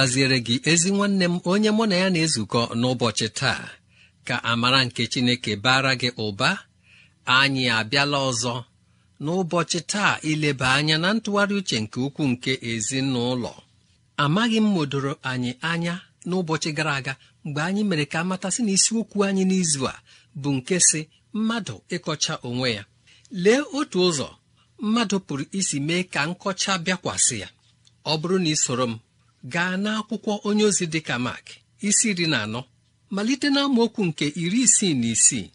gaziere gị ezi nwanne m onye mụ na ya na-ezukọ n'ụbọchị taa ka amara nke Chineke bara gị ụba anyị abịala ọzọ n'ụbọchị taa ileba anya na ntụgharị uche nke ukwuu nke ezinụlọ amaghị m modoro anyị anya n'ụbọchị gara aga mgbe anyị mere ka amatasị na isiokwu anyị n'izu a bụ nke si mmadụ ịkọcha onwe ya lee otu ụzọ mmadụ pụrụ isi mee ka nkọcha bịakwasị ya ọ bụrụ na ị soro m gaa n'akwụkwọ onye ozi dị ka Mak isi iri na anọ malite na nke iri isii na isii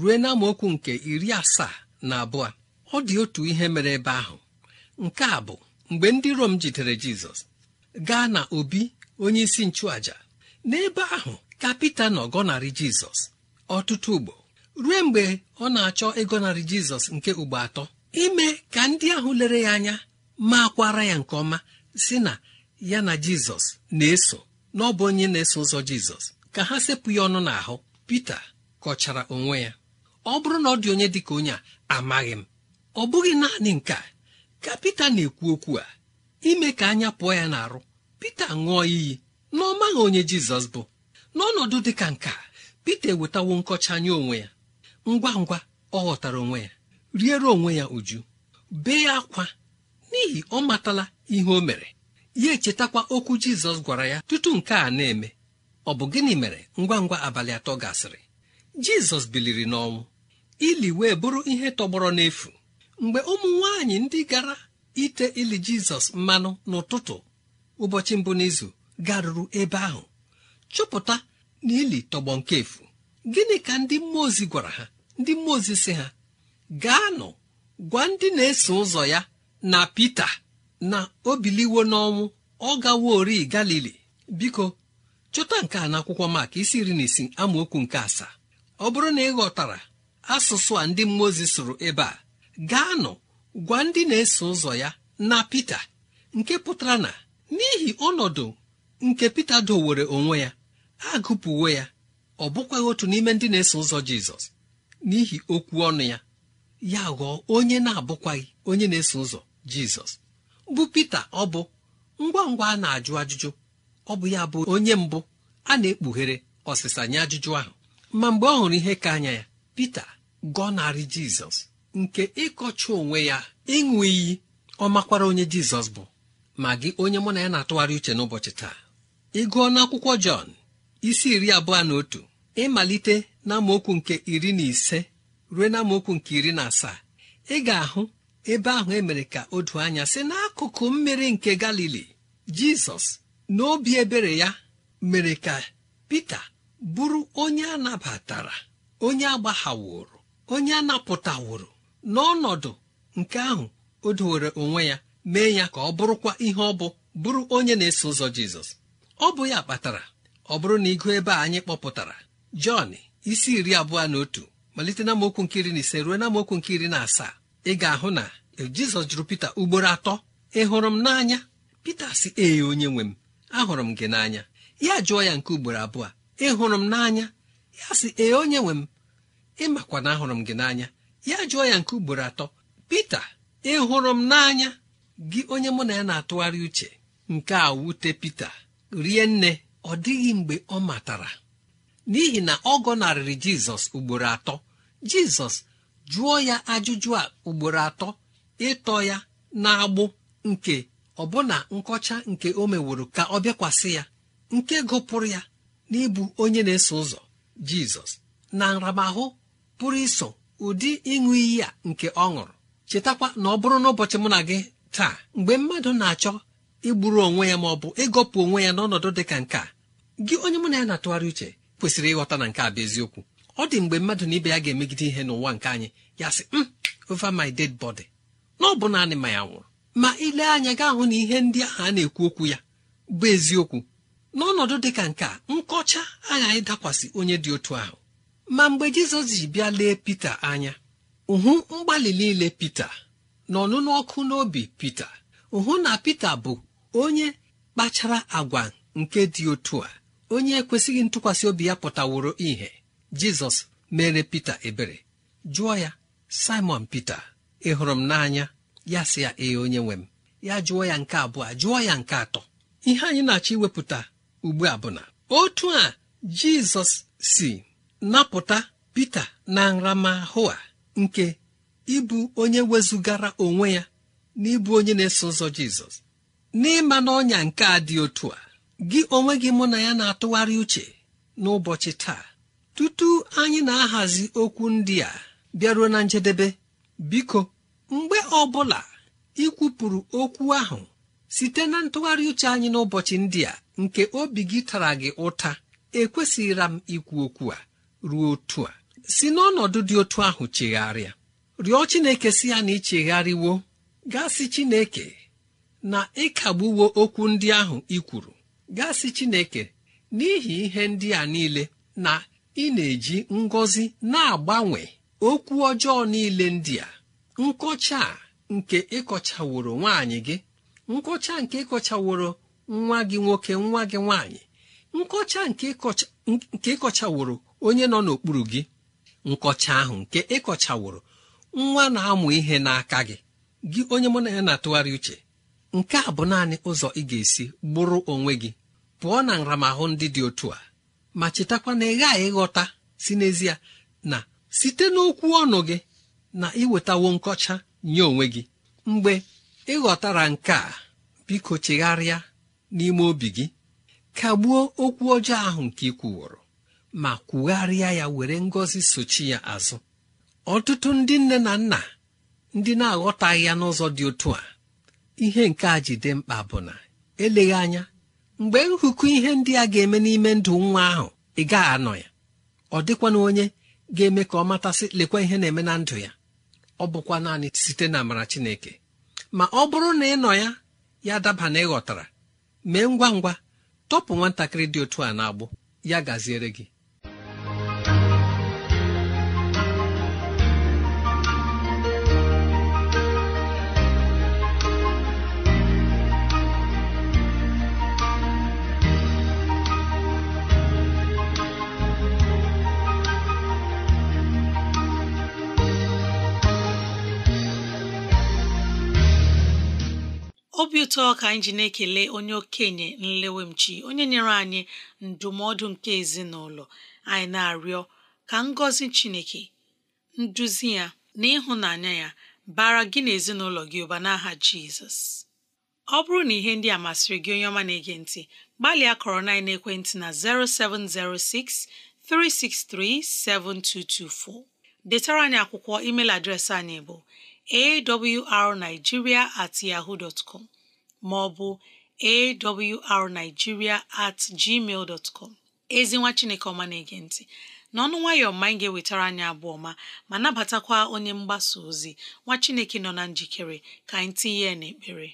ruo na nke iri asaa na abụọ ọ dị otu ihe mere ebe ahụ nke a bụ mgbe ndị Rom jidere Jizọs gaa na obi onye isi nchụaja n'ebe ahụ ka Pita nọ gọnarị Jizọs ọtụtụ ugbo ruo mgbe ọ na-achọ ịgọnarị Jizọs nke ugbo atọ ime ka ndị ahụ lere ya anya ma ya nke ọma si na ya na jizọs na-eso n'ọbụ onye na-eso ụzọ jizọs ka ha sepụ ya ọnụ n'ahụ pita kọchara onwe ya ọ bụrụ na ọ dị onye dị ka onye a amaghị m ọ bụghị naanị nke a ka pita na-ekwu okwu a ime ka anya pụọ ya n'arụ pita ṅụọ iyi na ọ maghị onye jizọs bụ n'ọnọdụ dị ka nke a pita ewetawo nkọcha anya onwe ya ngwa ngwa ọ ghọtara onwe ya riere onwe ya uju bee akwa n'ihi ọ matala ihe o mere ya echetakwa okwu jizọs gwara ya tutu nke a na-eme ọ bụ gịnị mere ngwa ngwa abalị atọ gasịrị jizọs biliri n'ọnwụ ili wee bụrụ ihe tọgbọrọ n'efu mgbe ụmụ nwanyị ndị gara ite ili jizọs mmanụ n'ụtụtụ ụbọchị mbụ n'izu garuru ebe ahụ chọpụta na ili tọgbọ nke efu gịnị ka ndị mmụọ ozi gwara ha ndị mmụọ ozi si ha gaa gwa ndị na-eso ụzọ ya na Pita na o biliwo n'ọnwụ ọ gawa ori galili biko chọta nke a n'akwụkwọ maka isi iri na isi amaokwu nke asaa ọ bụrụ na ị ghọtara asụsụ a ndị mmụọ ozi sụrụ ebe a gaanụ gwa ndị na-eso ụzọ ya na Pita nke pụtara na n'ihi ọnọdụ nke Pita dowere onwe ya agụpụwo ya ọ bụkwaghị otu n'ime ndị na-eso ụzọ Jizọs n'ihi okwu ọnụ ya ya ghọọ onye na-abụkwaghị onye na-eso ụzọ Jizọs bụ Pita ọ bụ ngwa ngwa a na-ajụ ajụjụ ọ bụ ya bụ onye mbụ a na-ekpughere ọsịsa nye ajụjụ ahụ ma mgbe ọ hụrụ ihe ka anya ya Pita gọnarị Jizọs nke ịkọcha onwe ya ịṅụ iyi ọ makwara onye Jizọs bụ ma gị onye mụ na ya na-atụgharị uche n'ụbọchị taa ịgụọ gụọ n'akwụkwọ Jọn isi iri abụọ na otu ịmalite na amaokwu nke iri na ise ruo na nke iri na asaa ị ga-ahụ ebe ahụ emere ka o doo anya si n'akụkụ mmiri nke galili jizọs na obi ebere ya mere ka pita bụrụ onye a nabatara onye agbaghaworo onye a napụtaworo n'ọnọdụ nke ahụ o dowere onwe ya mee ya ka ọ bụrụkwa ihe ọ bụ bụrụ onye na-eso ụzọ jizọs ọ bụ ya kpatara ọ bụrụ na ịgụ ebe a anyị kpọpụtara jọn isi iri abụọ na otu malite na mokwu nke na ise ruo na mokwu nke na asaa ị ga-ahụ na jizọs jụrụ pita ugboro atọ ị hụrụ m n'anya pita si ee onye nwe m ahụrụ m gị n'anya ya jụọ ya nke ugboro abụọ ị hụrụ m n'anya ya si ee onye nwe m ị makwa na ahụrụ m gị n'anya ya jụọ ya nke ugboro atọ pita ị hụrụ m n'anya gị onye mụ na ya na-atụgharị uche nke a wute pita rie nne ọ dịghị mgbe ọ matara n'ihi na ọ gọnarịrị jizọs ugboro atọ jizọs jụọ ya ajụjụ a ugboro atọ ịtọ ya na-agbụ nke ọbụna nkọcha nke o meworo ka ọ bịakwasị ya nke gụpụrụ ya n'ịbụ onye na-eso ụzọ jizọs na nramahụ pụrụ iso ụdị ịṅụ iyi a nke ọ ṅụrụ chetakwa na ọ bụrụ n'ụbọchị mụ na gị taa mgbe mmadụ na-achọ igburu onwe ya ma ọ bụ ịgọpụ onwe ya n'ọnọdụ dị ka nke a gị onye mụ na ya na-atụgharị uche kwesịrị ịghọta na nke a bụ eziokwu ọ dị mgbe mmadụ na ibe ya ga-emegide ihe n'ụwa nke anyị ya sị m hmm, over my ded body na ọ bụ naanị ma ya nwụrụ ma ile anya gaa hụ na ihe ndị ahụ a na-ekwu okwu ya bụ eziokwu n'ọnọdụ dị ka nke a nkọcha aghaghị dakwasị onye dị otu ahụ ma mgbe jizọs ji bịa lee pita anya uhu mgbalị niile pita na ọnụnụ ọkụ n'obi pita hụ na pita bụ onye kpachara agwa nke dị otu a onye ekwesịghị ntụkwasị obi ya pụtaworo ihe jizọs mere pita ebere jụọ ya simon pita ị hụrụ m n'anya ya sị ya ee onye nwe m ya jụọ ya nke abụọ jụọ ya nke atọ ihe anyị na-achọ iwepụta ugbu a bụ na otu a jizọs si napụta pita na nramahụ a nke ịbụ onye wezugara onwe ya na ịbụ onye na-eso ụzọ jizọs n'ịma na ọnya nke a dị otu a gị onwe gị mụ na ya na-atụgharị uche n'ụbọchị taa tutu anyị na-ahazi okwu ndị a bịaruo na njedebe biko mgbe ọ bụla ikwupụrụ okwu ahụ site na ntụgharị uche anyị n'ụbọchị ndị a nke obi gị tara gị ụta ekwesịghịra m ikwu okwu a ruo otu a si n'ọnọdụ dị otu ahụ chegharịa rịọ Chineke si ya na ịchegharịwo gasị Chineke na ịkagbuwo okwu ndị ahụ ikwuru kwuru gasị Chineke n'ihi ihe ndị a niile na ị na-eji ngọzi na-agbanwe okwu ọjọọ niile ndị a nkọcha nke ịkọchaworo nwaanyị gị nkọcha nke ịkọchaworo nwa gị nwoke nwa gị nwaanyị nkọcha nke ịkọchaworo onye nọ n'okpuru gị nkọcha ahụ nke ịkọchaworo nwa na-amụ ihe n'aka gị gị onye mụ na ya na-atụgharị uche nke a bụ naanị ụzọ ị ga-esi gbụrụ onwe gị pụọ na nramahụ ndị dị otu a ma chetakwa na ị ghaghị ịghọta si n'ezie na site n'okwu ọnụ gị na iwetawo nkọcha nye onwe gị mgbe ịghọtara nke a biko chegharịa n'ime obi gị kagbuo okwu ọjọọ ahụ nke ị kwuworo ma kwugharịa ya were ngọzi sochi ya azụ ọtụtụ ndị nne na nna ndị na-aghọtaghị ya n'ụzọ dị otu a ihe nke a ji mkpa bụ na eleghị anya mgbe nhụkụ ihe ndị a ga-eme n'ime ndụ nwa ahụ ị gaghị anọ ya ọ dịkwana onye ga-eme ka ọ matasị lekwa ihe na-eme na ndụ ya ọ bụkwa naanị site na amara Chineke ma ọ bụrụ na ị nọ ya ya daba na ịghọtara mee ngwa ngwa tọpụ nwatakịrị dị otu a na-agbụ ya gaziere gị obi ụtọ ka anyị ji na-ekele onye okenye nlewemchi onye nyere anyị ndụmọdụ nke ezinụlọ anyị na-arịọ ka ngọzi Chineke nduzi ya na ịhụnanya ya bara gị na ezinụlọ gị ụba n'aha Jizọs ọ bụrụ na ihe ndị a masịrị gị onye ọma na-ege ntị gbalịa kọrọ na ekwentị na 0706 363 7224 detara anyị akwụkwọ email adreesị anyị bụ awrnigeria at yahoo dot com maọbụ awrnigeria at gmail dot com ezinwa chineke ọma na-ege ntị n'ọnụ nwayọọ ma anyị ga-ewetara anyị abụọ ma ma nabatakwa onye mgbasa ozi nwa chineke nọ na njikere ka anyị tinye ya n'ekpere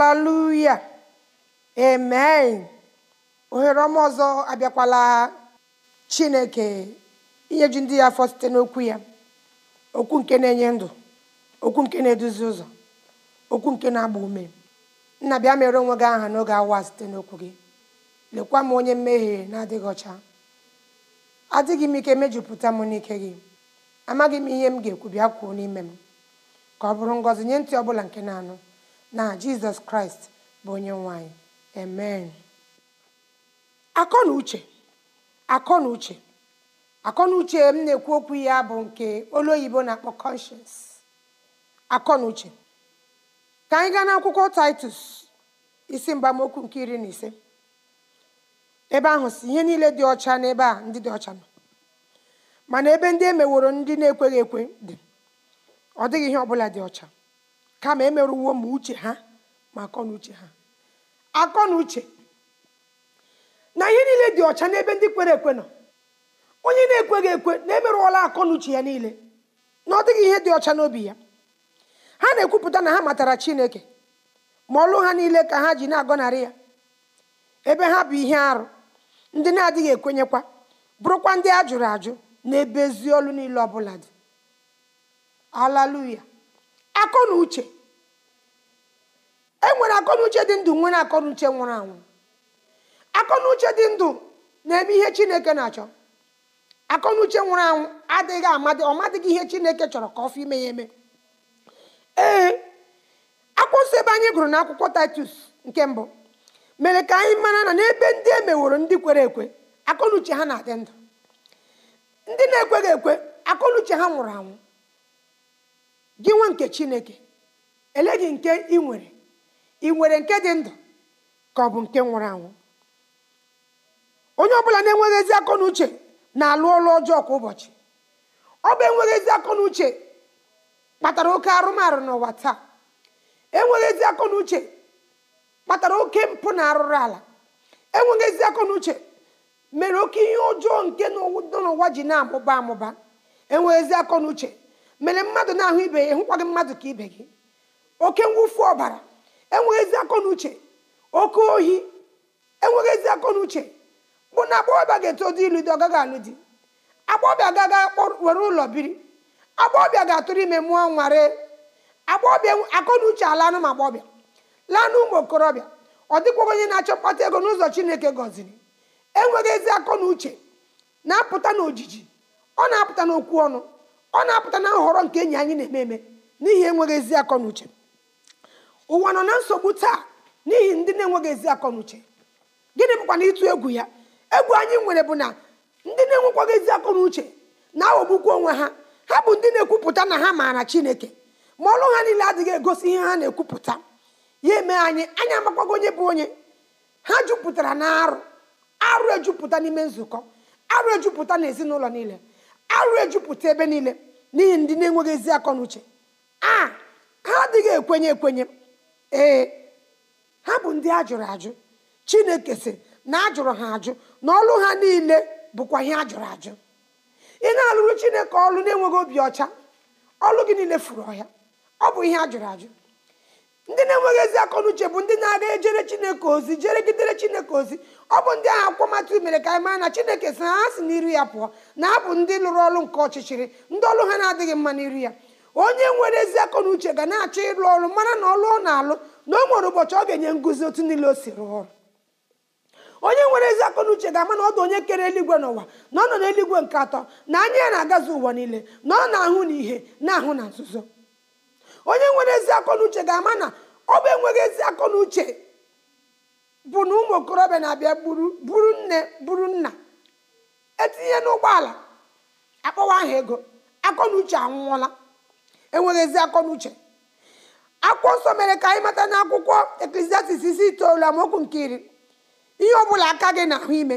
haleluya amen ohere ọma ọzọ abịakwala chineke inyeju ndị ya afọ site n'okwu ya okwu nke na-enye ndụ okwu nke na-eduzi ụzọ okwu nke na-agba ume nna bịa mere onwe gị aha n'oge awa site n'okwu gị lekwa m onye mmehie na-adịghị ọcha adịghị m ike mejupụta m n'ike gị amaghị m ihe m ga-ekwu bịa kwuo n'ime m ka ọ bụrụ ngọzi nye ntị ọ bụla nke na-anụ na jizọs kraịst bụ onye nwanyị amen akọ na uche akọ na uche m na-ekwu okwu ya bụ nke olu oyibo na-akpọ conscience akọ na uche ka anyị gaa n'akwụkwọ titus isi mgbamokwu nke iri na ise ebe ahụ si ihe niile dị ọcha na ebe a ndị dị ọcha nọ mana ebe ndị emeworo ndị na-ekweghị ekwe dị ọ dịghị ihe ọbụla dị ọcha kama emerụwo ma uche ha ma akọnuche ha akọnuche na ihe niile dị ọcha n'ebe ndị kwere ekwe nọ onye na-ekweghị ekwe na-emerụọla akọnuche ya niile na ọ dịghị ihe dị ọcha n'obi ya ha na-ekwupụta na ha matara chineke ma ọlụ ha niile ka ha ji na-agọnarị ya ebe ha bụ ihe arụ ndị na-adịghị ekwenyekwa bụrụkwa ndị ajụrụ ajụ n'ebe ezi niile ọbụla dị alaluya akọ na uche e nwere dị ndụ nwere akọnuche nwụrụ anwụ akọnuche dị ndụ na-eme ihe chineke na-achọ akọnuche nwụrụ anwụ adịghị amadị ọmadịghị ihe chineke chọrọ ka ọ fọ ime ya eme ee akwụsị ebe anyị gụrụ na akwụkwọ titus nke mbụ mere ka anyị mara na n'ebe ndị e meworo ndị kwere ekwe akọnuche ha na-adị ndụ ndị na-ekweghị ekwe akọnuche ha nwụrụ anwụ gị nwa nke chineke ele gị nke ị nwere ị nwere nke dị ndụ ka ọ bụ nke nwụrụ anwụ onye ọbụla na-enweghị ezi akọ na na-alụ ọlụ ọjọọ kwa ụbọchị ọ bụ enweghị ezi akọ uche kpatara oke arụmarụ n'ụwa taa enweghị ezi akọ na uche kpatara oke mpụ na arụrụ ala enweghị ezi akọ na uche mere oke ihe ọjọọ nke nọ n'ụwa ji na-amụba amụba enweghị ezi akọ na uche mere mmadụ na-ahụ ibe ya hụkwa gị mmadụ ka ibe gị oke mwụfu ọbara enweghị ezi akọ na uche oke ohi enweghị ezi akọ na uche bụ na agbọghọbịa ga-eto dị ilu dị ọgaghị alụ di agbọghọbịa gaga were ụlọ biri agbọghọbịa ga-atụrụ ime mụọ nware agbọghọbịa akọ na uche alanụ ma agbọghọbịa laa ụmụ okorobịa ọ dịkwaghị onye na-achọ mkpata ego n'ụzọ chineke gọziri enweghị ezi akọ na uche na-apụta n'ojiji ọ na-apụta n'okwu ọnụ ọ na-apụta na nhọrọ nke enyi anyị na-eme eme n'ihi enweghị ezi akọ na uche ụwa nọ na nsogbu taa n'ihi ndị na-enweghị ezi akọ na uche gịnị bụkwa na ịtụ egwu ya egwu anyị nwere bụ na ndị na-enwekwaghị ezi akọ na uche na aghọgbukwu onwe ha ha bụ ndị na-ekwupụta na ha maara chineke ma ọlụ ha niile adịghị egosi ihe ha na-ekwupụta ya eme anyị anyị makwago onye bụ onye ha jupụtara na arụ arụ ejupụta n'ime nzukọ arụ ejupụta na ezinụlọ niile arụ ejupụta ebe niile n'ihi ndị na-enweghị ezi akọ a ha adịghị ekwenye ekwenye ee ha bụ ndị ajụrụ jụrụ ajụ chineke si na ajụrụ ha ajụ na ọlụ ha niile bụkwa ihe ajụrụ ajụ ị na-alụrụ chineke ọlụ na-enweghị obi ọcha ọlụ gị niile furu ọhịa ọ bụ ihe ajụrụ ajụ ndị na-enweghị ezi n'uche bụ ndị na-aga ejere chineke ozi jere gidere chineke ozi ọ bụ ndị ahụ akwụkwọmatụ mere ka anyị maa na chineke si ha si n'iru ya pụọ na abụ ndị lụrụ ọrụ nke ọchịchịrị ndị ọrụ ha na-adịghị mma n'iru ya onye nwere ezi n'uche ga na-achọ ịrụ ọrụ mara na ọlụ ọ na-alụ na o nwere ụbọchị ọ ga-enye nguzi otu niile o si rụọ onye nwere ezi akọ ga-ama na ọdụ onye kere eluigwe n'ụwa na ọ nọ n'eluigwe nke atọ na anya ya na-agazi ụwa niile na ọ na-ahụ na ihe na-ahụ na nzuzo onye nwere ezi akọ na uche ga-ama na ọ bụ enweghị ezi akọ na uche bụ na ụmụ okorobịa na-abịa buru nne buru nna etinye n'ụgbọala akpọwa aha ego akọ na uche anwụọla enweghị ezi akọ na uche akwụkwọ nsọ mere ka anyị mata na akwụkwọ eklesiastis isi itoolu amaokwu nke iri ihe ọ bụla aka gị na ahụ ime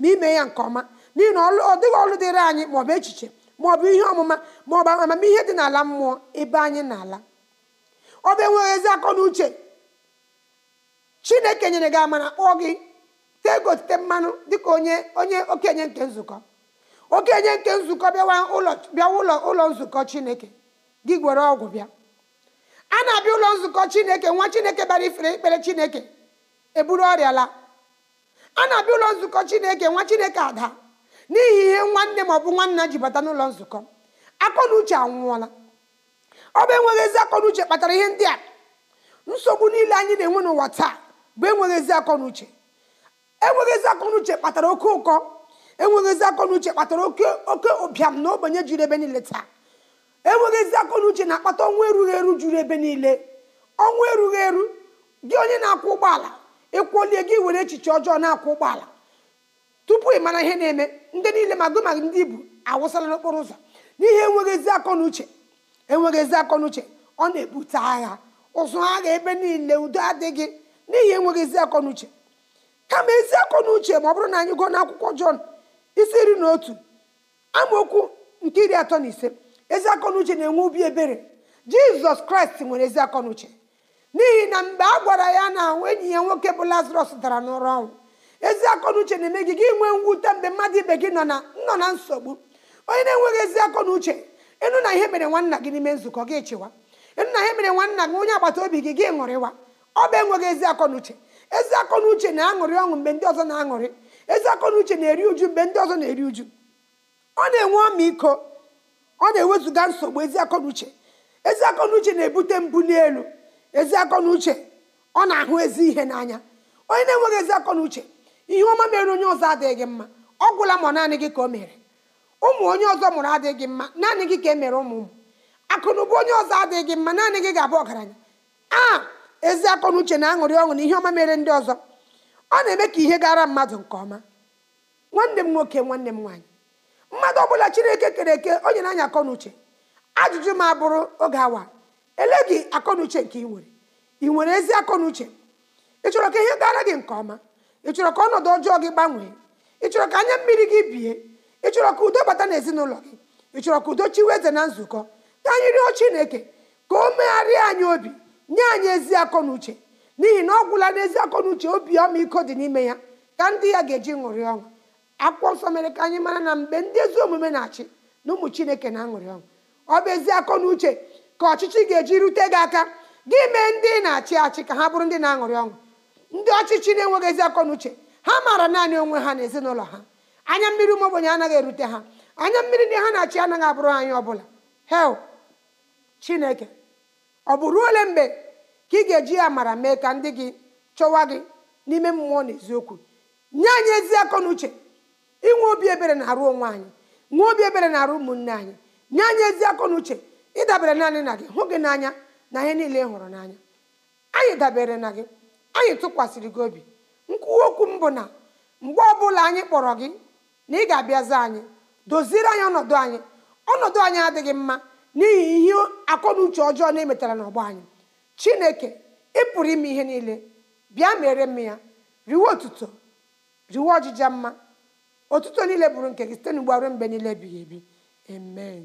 ma ime ya nke ọma n'ihi na ọ dịghị ọrụ dịrị anyị maọbụ echiche ma ọ bụ ihe ọmụma ma ọ maọbụ amamihe dị n'ala mmụọ ebe anyị na-ala ọ bụ enweghị ezi akọ na uche chineke nyere gị amara kpọọ gị tee gotite mmanụ dịka onye onye okenye nke nzukọ okenye nke nzukọ bịawa ụlọ bịa ụlọ ụlọ nzukọ chineke gị gwere ọgwụ bịa a na-abịa ụlọ nzukọ chineke nwa chineke bara ifere ekpere chineke eburu ọrịa laa a na-abịa ụlọ nzukọ chineke nwa chineke ada n'ihi ihe nwanne ma ọ bụ nwanna ji bata n'ụlọ nzukọ akọnuche anwụọla ọ bụ enweghị ezi akọnuche kpatara ihe ndị a nsogbu niile anyị na-enwe n'ụwa taa bụ enweghị ezi akọnuche enweghị ezi akọnuche kpatara oke ụkọ enweghị ezi akọnuche kpatara oke oke ụbịam na ogbenye juru ebe niile taa enweghị ezi akọnuche na-akpata ọnwụ erughị eru juru ebe niile ọnwụ erughị eru gị onye na-akwụ ụgbọala ịkwụlie gị were echiche ọjọọ na-akwụ ụgbọala tupu ị mara ihe na-eme ndị niile ma goma ndị ibu awụsala n'okporo ụzọ n'ihe enweghị ezi akọ uche enweghị ezi akọ ọ na-ebute agha ụzụ agha ebe niile udo adịghị n'ihi enweghị ezi akọ n'uche kama ezi akọ ma ọ bụrụ na anyị gụọ n'akwụkwọ jọn isi iri na otu amaokwu nke iri atọ na ise ezi akọ na na-enwe obi ebere jizọs kraịst nwere ezi akọ n'uche n'ihi na mgbe a gwara ya na enyi ya nwoke bụ lazarọs dara n'ụra ọnwụ ezi akọnuche na-eme gị gị nwee mwute mgbe mmadụ ibe gị nọ na nọ na nsogbu onye na-enweghị ezi akọnuche ịnụ na ihe mere nwanna gị n'ime nzukọ gị chịwa ịnụ na ihe mere nwanna gị onye agbata obi gị gị ṅụrịwa ọ bụ enweghị ezi akọnuche ezi n'uche na-aṅụrị ọṅụ mgbe ndị ọzọ na-aṅụrị ezi akọnuche na-eri uju mgbe ndị ọzọ na-eri uju ọ na-enwe ọmịiko ọ na-ewezuga nsogbu ezi akọnuche ezi akọnuche na-ebute mbụ n'elu ezi akọnuche ọ na-ahụ ezi ihe n'anya onye na-enweghị ezi uche ihe ọma mere onye ọzọ adịghị gị mma ọ gwụla ma naanị gị ka o mere ụmụ onye ọzọ mụrụ adịghị gị mma naanị gị ka e mere ụmụ ụmụ akụnụba onye ọzọ adịghị gị mma naanị gị ga-abụ ọgaranya aa ezi akọnuche na an̄ụrị aṅụrị ọṅụ na ihe ọma mere ndị ọzọ ọ na-eme ka ihe gara mmadụ nke ọma nwanne m nwoke nwanne m nwaanyị mmadụ ọbụla chineke kere eke onye na-anya akọnuche ajụjụ ma bụrụ oge awa ele gị akọnuche nke ị nwere ị nwere ezi akọnuche ị chọrọ ka ihe gara gị nke ọma ị chọrọ ka ọnọdụ ọjọọ gị gbanwee ị chọrọ ka anya mmiri gị bie ị chọrọ ka udo bata n'ezinụlọ gị ị chọrọ ka udo chiwe eze na nzukọ ka anyị rịọ chineke ka o megharịa anyị obi nye anyị ezi akọ na uche n'ihi na ọ gwụla n'ezi akọ na uche obi ọmịiko dị n'ime ya ka ndị ya ga-eji ṅụrị ọṅụ akwụkwọ nsọ mere ka anyị mara na mgbe ndị ezi omume na-achị na ụmụ chineke na-aṅụrị ọṅụ ọ bụ ezi akọ na uche ka ọchịchị ga-eji rute gị aka gị mee ndị na-achị achị ka ha bụrụ ndị na-aṅụrị ọṅụ ndị ọchịchị na-enweghị ezi akọ uche ha maara naanị onwe ha na ezinụlọ ha anya mmiri ụmụ ogbenye anaghị erute ha anya mmiri ndị ha na-achị anaghị abụrụ anyị ọbụla hel chineke ọ bụ ruo ole mgbe ka ị ga-eji amara mee ka ndị gị chọwa gị n'ime mmụọ na eziokwu nye anyị ezi akọ na uche inwe obi ebere na-arụ onwe anyị nwee obi ebere na-arụ ụmụnne anyị nye anyị ezi akọ uche ịdabere naanị na gị hụ gị n'anya na ihe niile ị hụrụ n'anya anyị dabere na gị anyị tụkwasịrị gị obi nkwuwa okwu m bụ na mgbe ọbụla anyị kpọrọ gị na ị ga-abịazi anyị doziere anyị ọnọdụ anyị ọnọdụ anyị adịghị mma n'ihi ihe akọnuche ọjọọ na-emetara n'ọgbọ anyị chineke ị pụrụ ime ihe niile bịa mere m ya riwe otuto riwe ọjịja mma otuto niile bụrụ nke gị site n'ugbo ruo mgbe niile ebighị ebi amen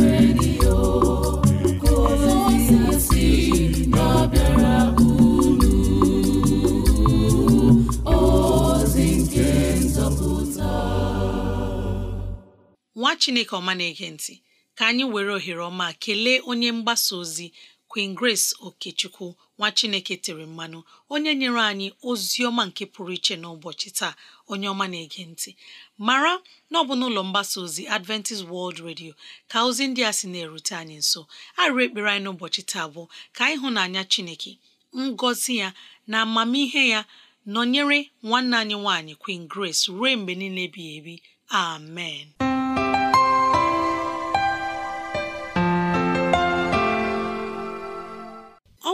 nwa chineke ọma na-ege ntị ka anyị were ohere ọma kelee onye mgbasa ozi Queen Grace Okechukwu nwa chineke tere mmanụ onye nyere anyị ozi ọma nke pụrụ iche n'ụbọchị taa onye ọma na-ege ntị mara na ọ bụ n'ụlọ mgbasa ozi Adventist World Radio ka ozi ndị a sị na-erute anyị nso arụ ekpere anyị n'ụbọchị taa bụ ka nanya chineke ngọzi ya na amamihe ya nọnyere nwanne anyị nwaanyị Queen Grace ruo mgbe niile ebighị ebi amen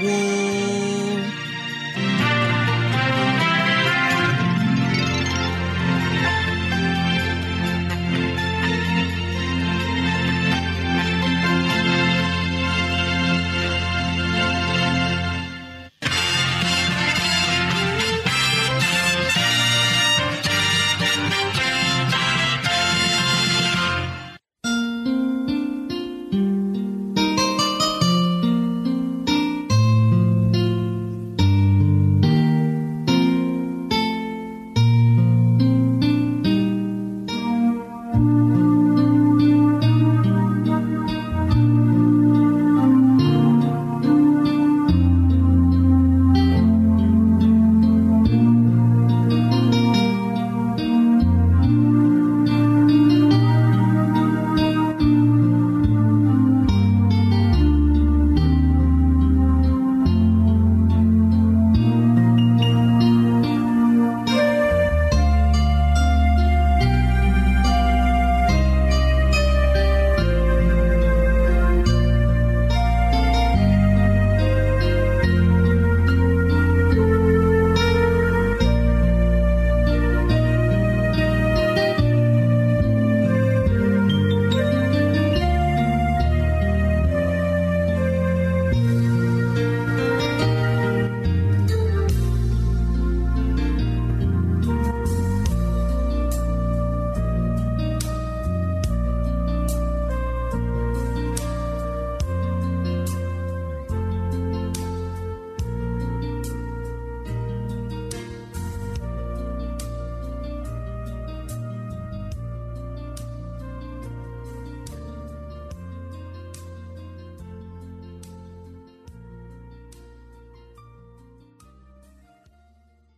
woo!